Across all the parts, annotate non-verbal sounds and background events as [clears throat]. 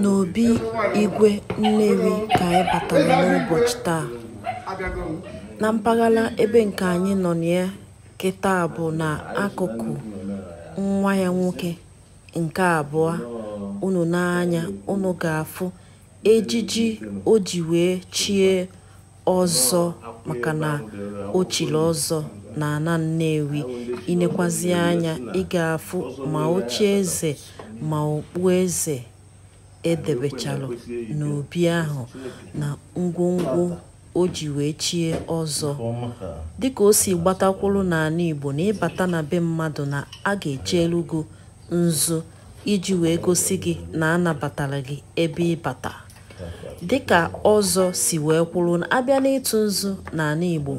n'obi igwe nnewi ka anyị batara n'ụbọchị taa na mpaghara ebe nke anyị nọ ya kịta bụ na akụkụ nwa ya nwoke nke abụọ unu n'anya unu ga-afụ ejiji o ji wee chie ọzọ maka na chiri ọzọ na na Nnewi inekwazịa anya ị ga-afụ ma eze ma eze edebechalụ n'obi ahụ na ngwongwo o ji wee chie ọzọ dịka o si gbatakwụlụ n'ala Igbo na ịbata na be mmadụ na a ga-echelugo nzu iji wee gosi gị na anabatara gị ebe ịbata dịka ọzọ si wee kwuru na abịa n'ịtụ nzu n'ala Igbo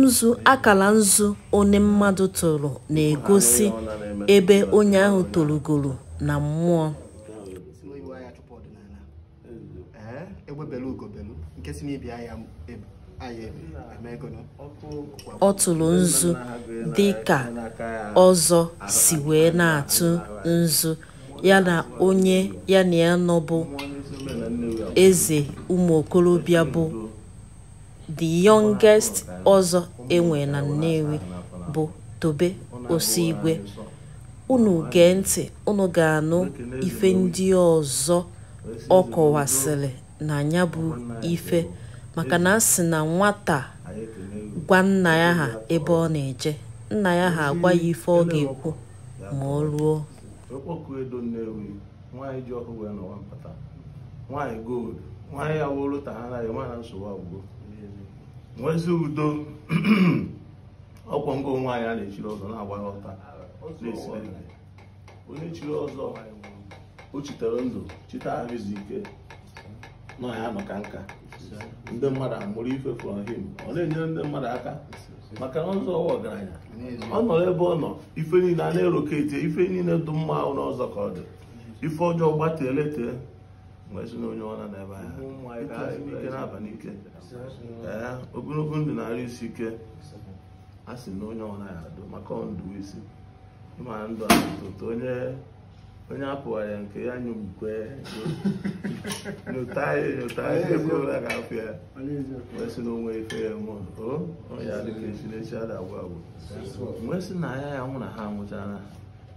nzu akala nzu onye mmadụ tụrụ na-egosi ebe onye ahụ torogoro na mmụọ ọ tụrụ nzu dị ka ọzọ si wee na-atụ nzu ya na onye ya na ya nọbụ eze ụmụ okorobịa bụ the youngest ọzọ enwe na Nnewi bụ Tobe Osigwe unu gee ntị unu ga-anụ ife ndị ọzọ ọ kọwasịrị na ya bụ ife maka na a sị na nwata gwa nna ya ha ebe ọ na-eje nna ya ha agwa ya ife ọ ga-ekwu ma ọ ruo nwanyị gold nwanyị ya wụrụ ta ha naghị nwanyị nsogbu agwụgo nwezi udo [clears throat] ọkwọ ngo nwaanyị a na-echiri ọzọ na-agba ya ọta ah, onye chiri ọzọ o chitere ndụ chite ahụzi ike nọ ya maka nka ndị mmadụ amụrụ ife from him ọ na-enyere ndị mmadụ aka maka na ọzọ ọgaranya ọ nọ ebe ọ nọ ife niile a na-erokete ife niile dụ mma ahụ n'ọzọ ka ọ dị ife ọjọọ gbatee letee Eh, na onye ọra n'ebe ahịa ka ike na-aba n'ike ndụ na-arụ isi ike a sị na onye ọra ya adụ maka ndụ isi ndụ onye onye ya nke ya ya na onwe ife ya mụ o onye esi na ya ya nwụ na ha nwụchara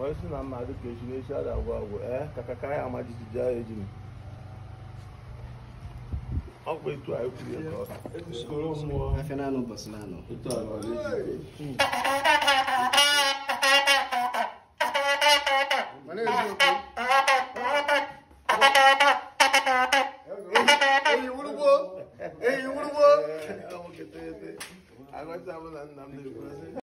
wọ́n sì na mmadụ ka echi n'echi ada agwụ agwụ ee ka kaka ya ama jijiji agha ejiri ọ bụ etu a ekwuru ya ka uskoro mmụọ afịa naanị ụbọchị naanị etu a nọrọ ejiri mana eziokwu